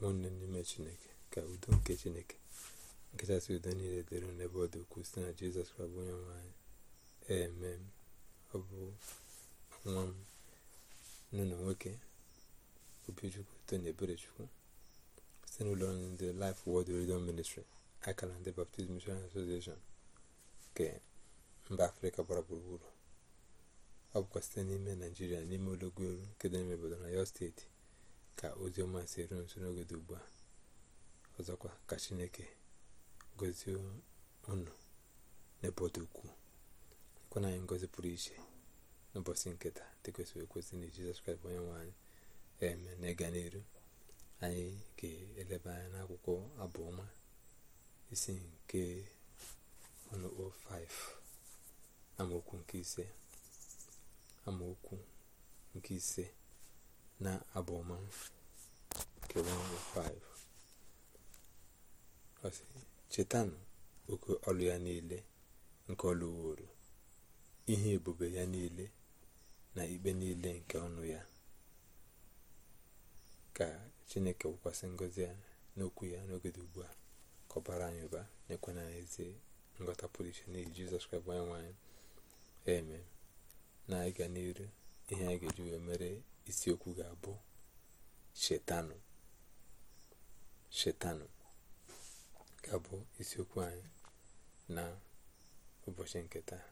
nwanne n'ime chineke ka udo nke chineke nkachasị udo niile dịrị n'ebe ọ dị ukwuu site na jizọs kraịst onye nwe anyị eme ọ bụ nwa m nụnụ nwoke obichukwu tony eberechukwu site n'ụlọ ọrụ ndị laịf wod radio ministri akara ndị baptist mission association nke mba afrịka gbara gburugburu ọ bụkwa site n'ime naijiria n'ime ụlọgwu elu nke dị n'ime obodo na yo steeti ka ozi ọma si eru nso n'oge dị ugbu a ọzọkwa ka chineke gozie unu n'ebe ọ dị ukwuu ekwana anyị ngozi pụrụ iche n'ụbọchị nketa dị kwesịrị ekwesị na jizọs kraịst onye nwe eme na ịga n'iru anyị ga-eleba anya n'akwụkwọ abụọma isi nke ọnụkpọ 5 amaokwu nke ise amaokwu nke ise na abụma nke 105 ọ chetanụ oke ọlụ ya niile nke ọlụ lụworo ihe ebube ya niile na ikpe niile nke ọnụ ya ka chineke wụkwasị ngozi ya n'okwu ya n'oge dị ugbu a kọbara anyị ụba nyekwana na ezi nghọta pụrụ iche n'ihi jizọs kraịst nwanyị nwaanyị eme na ịga n'iru ihe anyị ga-eji wee mere isiokwu ga-abụ shetanụ shetanụ ga-abụ isiokwu anyị na ụbọchị nke taa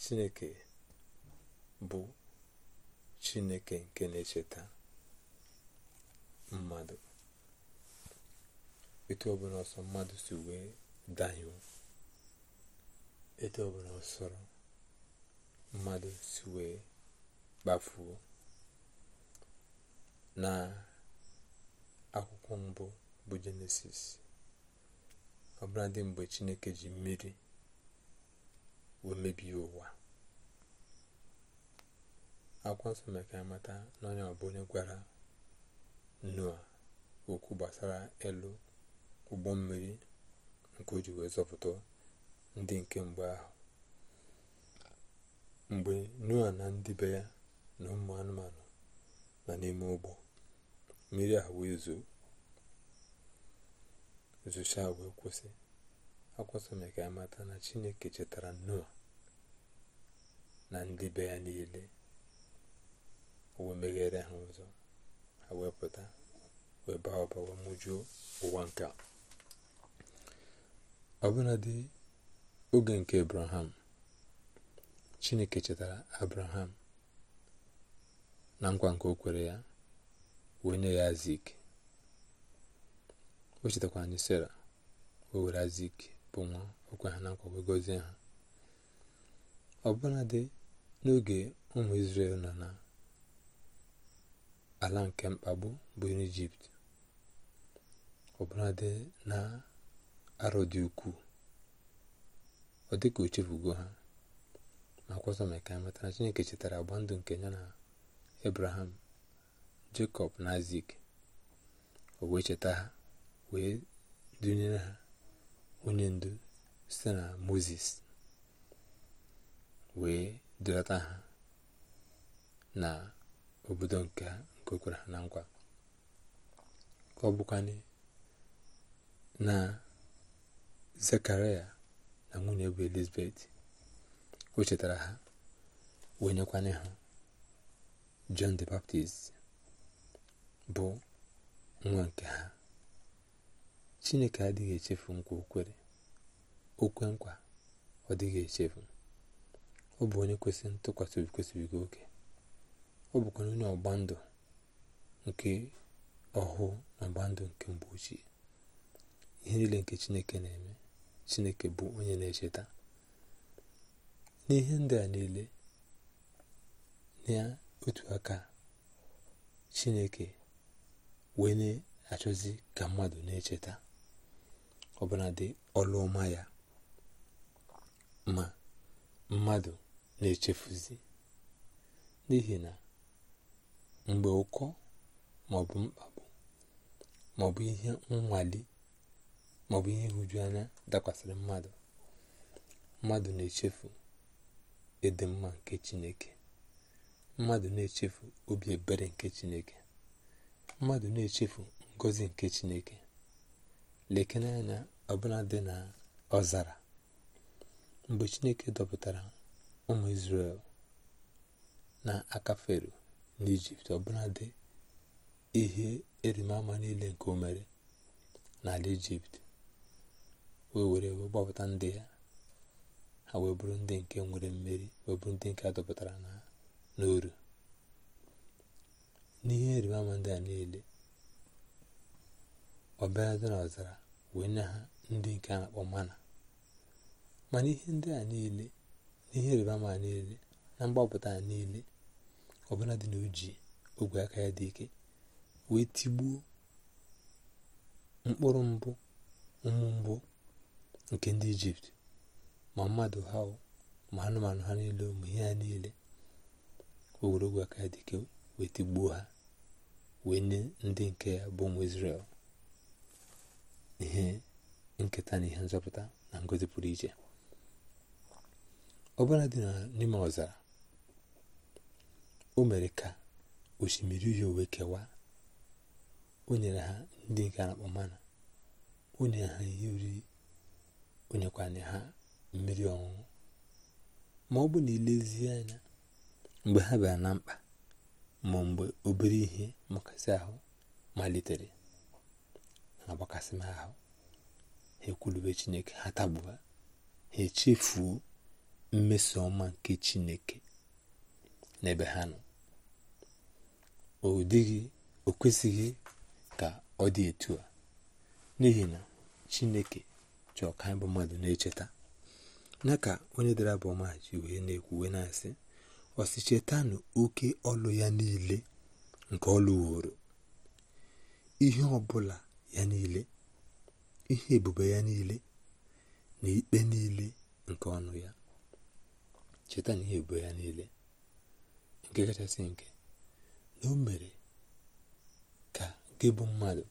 chineke bụ chineke nke na-echeta mmadụ etu ọbụla ọsọ mmadụ si wee dahie etu ọbụla ọsọrọ mmadụ si wee kpafuo na akwụkwọ mbụ bụ jenesis ọbụladị mgbe chineke ji mmiri wee mebie ụwa akwụkwọ nsọ mere ka amata na onye ọbụ onye gwara noa okwu gbasara elu ụgbọ mmiri nke o ji wee zọpụta ndị nke mgbe ahụ mgbe nua na ndị be ya na ụmụ anụmanụ na n'ime ụgbọ mmiri a wee zoo wee kwụsị akwụsị m ka amata na chineke chetara nnụọ na ndị be ya niile wee meghere ha ụzọ ha wee pụta wee baa ọba wee mụjuo ụwa nke ọbụladị oge nke abraham chineke chetara abraham na nkwa nke o kwere ya wee nye ya zik o chetakwa anyị sara o were azik bụ nwa okwe ha na nkwa wee gozie ha ọbụladị n'oge ụmụ Izrel nọ na ala nke mkpagbu bụ ijipt ọbụladị na arọ dị ukwuu ọ dịka o chefugo ha ma kwọsọ maka ya matara Chineke chetara agba ndụ nke ya na abraham jacob na azik o wee cheta ha wee dunyere ha onye ndu site na moses wee durata ha na obodo nke okwara ha na nkwa ka ọ na zekaria na nwunye bụ elizabeth o chetara ha wee ha John the Baptist bụ nwa nke ha Chineke adịghị echefu nkwa okwere okwe nkwa ọ dịghị echefu ọ bụ onye kwesịrị ntụkwasị obi kwesịbigo oke ọ bụkwa onye ọgba ndụ nke ọhụụ na ọgba ndụ nke mgbe ochie ihe niile nke Chineke na-eme Chineke bụ onye na-echeta n'ihe ndị a niile na otu aka chineke wee na-achọzi ka mmadụ na-echeta ọbụladị ọlụ ọma ya ma mmadụ na-echefuzi n'ihi na mgbe ụkọ maọbụ mkpagbu maọbụ ihe nwale maọbụ ihe nhụju dakwasịrị mmadụ mmadụ na-echefu ịdị mma nke chineke mmadụ na-echefu obi ebere nke chineke mmadụ na-echefu ngozi nke chineke lekene anya ọbụla dị na ọzara mgbe chineke dọpụtara ụmụ israel na aka fero n'ijipt ọbụla dị ihe erimama niile nke o mere n'ala ijipt wee were gbapụta ndị ya ha wee bụrụ ndị nke nwere mmeri wee ndị nke a dọpụtara n'oru n'ihe ịrịba ndị a niile ọbịarada n'ọzara wee nye ha ndị nke a na-akpọ mana mana ihe ndị a niile na ihe ịrịba niile na mgbapụta niile ọbụla dị na oji ogwe aka ya dị ike wee tigbuo mkpụrụ mbụ ụmụ mbụ nke ndị ijipt ma mmadụ ha ma anụmanụ ha niile ma ihe ha niile ogologo aka dike wee tigbuo ha wee nye ndị nke ya bụ ụmụ Izrel ihe nketa na ihe nzọpụta na ngozi pụrụ iche ọbụla dị na n'ime ọzara o mere ka osimiri uhie wee kewaa o nyere ha ndị nke na-akpọ mana o nyere ha ihe uri o ha mmiri ọṅụṅụ ma ọ bụ na ilezie anya mgbe ha bịara na mkpa ma mgbe obere ihe mgbakasị ahụ malitere na-agbakasị ahụ ha ekwulube chineke ha tagbuo ha echefuo mmeso ọma nke chineke n'ebe ha nọ o dịghị o kwesịghị ka ọ dị etu a n'ihi na chineke chọọ ka anyị mmadụ na-echeta na ka onye dara bụ ọma ji wee na-ekwu wee na-asị ọsị chetanụ oke ọlụ ya niile nke ọlụworo wuru ihe ọbụla ya niile ihe ebube ya niile na ikpe niile nke ọnụ ya cheta na ihe ebube ya niile nke kachasị nke na o mere ka gị bụ mmadụ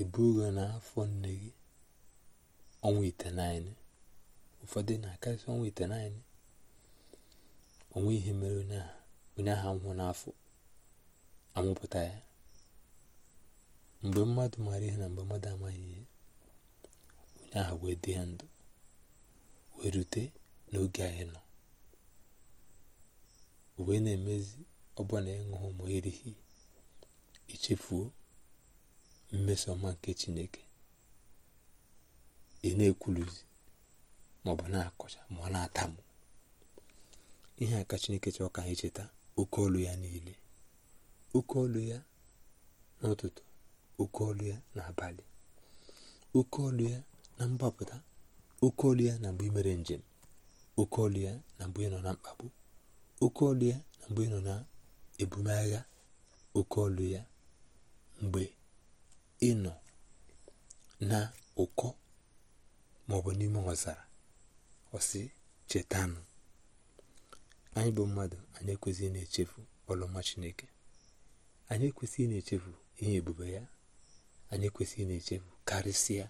ebugo n'afọ nne gị ọnwa itenaine ụfọdụ na-akarịsị ọnwa itenaine onwe ihe mere onye ahụ nwụ n'afọ amụpụta ya mgbe mmadụ maara ihe na mgbe mmadụ amaghị ihe onye ahụ wee dị ya ndụ wee rute n'oge anyị nọ wee na-emezi ọbụna ịṅụhụ ma erighi ichefuo mmeso ọma nke chineke ị na-ekwuluzi maọbụ na-akọcha ma ọ na-atamụ ihe a ka chineke chọọ ka anyị cheta oke olu ya niile oke olu ya n'ụtụtụ oke olu ya n'abalị oke olu ya na mgbapụta oke olu ya na mgbe imere njem oke olu ya na mgbe ịnọ na mkpagbu oke olu ya na mgbe ị nọ na ebumagha oke olu ya mgbe ị nọ na ụkọ maọbụ n'ime ọzara ọsị chetanụ anyị bụ mmadụ anyị ekwesịghị na-echefu ọlụma chineke anyị ekwesịghị na-echefu ihe ebube ya anyị ekwesịghị na-echefu karịsịa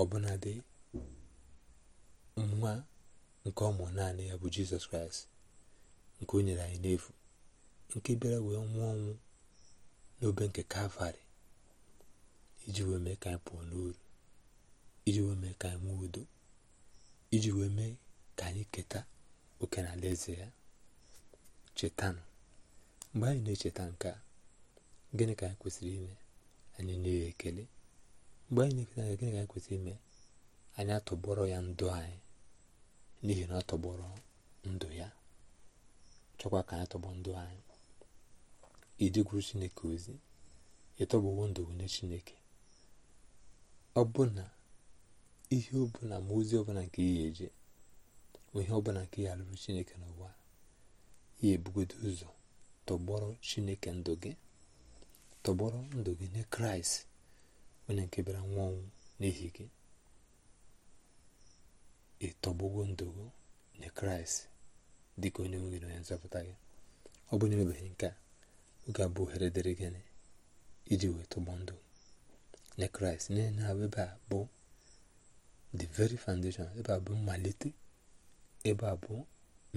ọbụnadị nwa nke ọmụ naanị ya bụ jizọs kraịst nke o nyere anyị n'efu nke bịara wee nwụọ ọnwụ n'obe nke kalvarị iji wee mee ka anyị pụọ n'uru iji wee mee ka anyị nwee udo iji wee mee ka anyị keta oke na alaeze ya chetanụ mgbe anyị na-echeta nke a gịnị ka anyị kwesịrị ime anyị na-enye ekele mgbe anyị na-eketa anya gịnị ka anyị kwesịrị ime anyị atọgbọrọ ya ndụ anyị n'ihi na ọ tọgbọrọ ndụ ya chọkwa ka anyị tọgbọ ndụ anyị iji chineke ozi ịtọgbuwo ndụ nye chineke ọ bụ na ihe ọbụla ma ozi ọbụla nke ihe eje onye ọbụla nke ya alụrụ chineke n'ụwa ya ebugodo ụzọ tọgbọrọ chineke ndụ gị tọgbọrọ ndụ gị nye kraịst onye nke bịara nwa ọnwụ n'ihi gị ịtọgbogo ndụ gị nye kraịst dịka onye nwere onye nzọpụta gị ọ bụ na e nke a oge abụ ohere dịrị gịnị iji wee tọgbọ ndụ nye kraịst n'ihi na ebe a bụ the very foundation ebe a bụ mmalite ebe a bụ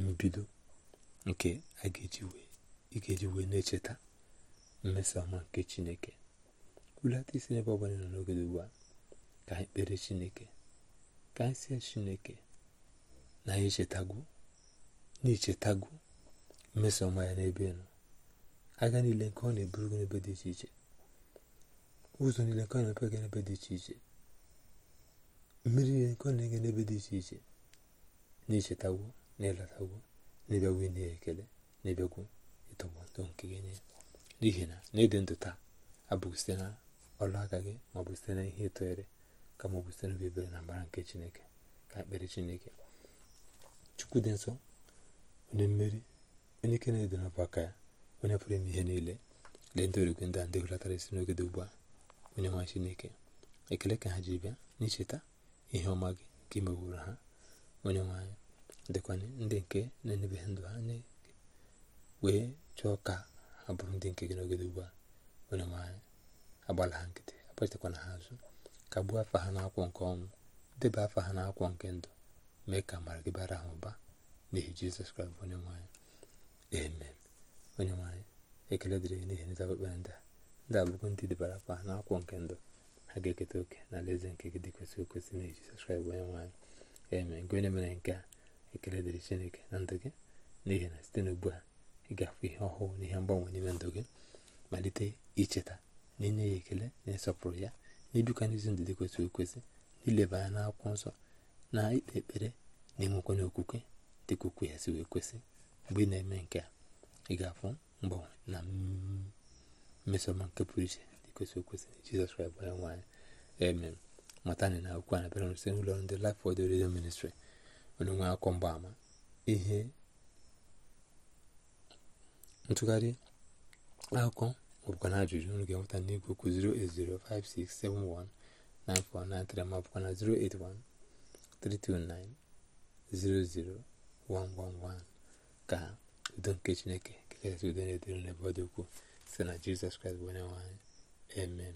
mbido nke a ga-eji wee na-echeta mmeso nke chineke hulata isi n'ebe ọ bụla nọ n'oge ugbu a ka anyị kpere chineke ka anyị sie chineke na anyị echetago na-echetago mmeso ya n'ebe nọ aga niile nke ọ na-eburu gị n'ebe dị iche iche ụzọ niile nke ọ na-emepe gị n'ebe dị iche iche mmiri niile nke ọ na-enye n'ebe dị iche iche na-echetawo na ịlọtawo na-ebịagwo ekele na-ebịagwo ịtọgbọ ndụ nke gị nye n'ihi na n'ịdị ndụ taa abụghị site na ọrụ aka gị maọbụ site na ihe ịtọghere ka ọ bụ site na obebere na mbara nke chineke ka ekpere chineke chukwu dị nsọ onye mmeri onye ike na-edo n'ọbụ aka ya onye pụrụ ime ihe niile lee ndị origwe ndị a ndị hụlatara isi n'oge dị ugbu a onye nwa chineke ekele ka ha ji bịa n'icheta ihe ọma gị nke imewuru ha onye nwanyị dịkwa ndị nke na-enebeghị ndụ anyị nye wee chọọ ka ha bụrụ ndị nke gị n'ogede ugbu a onye nwanyị agbala ha nkịtị akpachakwana ha azụ gbuo afa ha n'akwọ nke ọnwụ debe afa ha n'akwọ nke ndụ mee ka amara gị bara ha ụba n'ihi jizọs kraịst onye nwanyị amen onye nwanyị ekele dịrị gị n'ihi nzabakpere ndị a ndị abụgo ndị debara afa ha n'akwọ nke ndụ ha ga-eketa oke na alaeze nke gị dị kwesịrị ekwesị n'ihi jizọs kraịst onye nwanyị eme nke mere nke a ekele dịrị chineke na ndụ gị n'ihi na site n'ugbu a ị ga-afụ ihe ọhụụ na ihe mgbanwe n'ime ndụ gị malite icheta na inye ya ekele na ịsọpụrụ ya n'ibikwa n'izi ndụ dị kwesịrị ekwesị n'ileba anya n'akwụkwọ nsọ na ikpe ekpere na-enwekwa n'okwukwe dị ka ya si wee kwesị mgbe ị na-eme nke a ị ga-afụ mgbanwe na mmesoma nke pụrụ iche dị kwesịrị ekwesị jizọs kraịst bụ nwaanyị amen matani na akwụkwọ na pere site n'ụlọ ndị Life the Radio Ministry onye nwe akọ mgbaama ihe ntụgharị akụkọ maọbụkwa na ajụjụ unu ga-enweta n'igwe okwu 08056719493 maọbụkwa na 08132900111 ka udo nke Chineke kekasị udo na-edere n'ebe ọ dị ukwuu site na Jizọs Kraịst bụ onye nwanyị anyị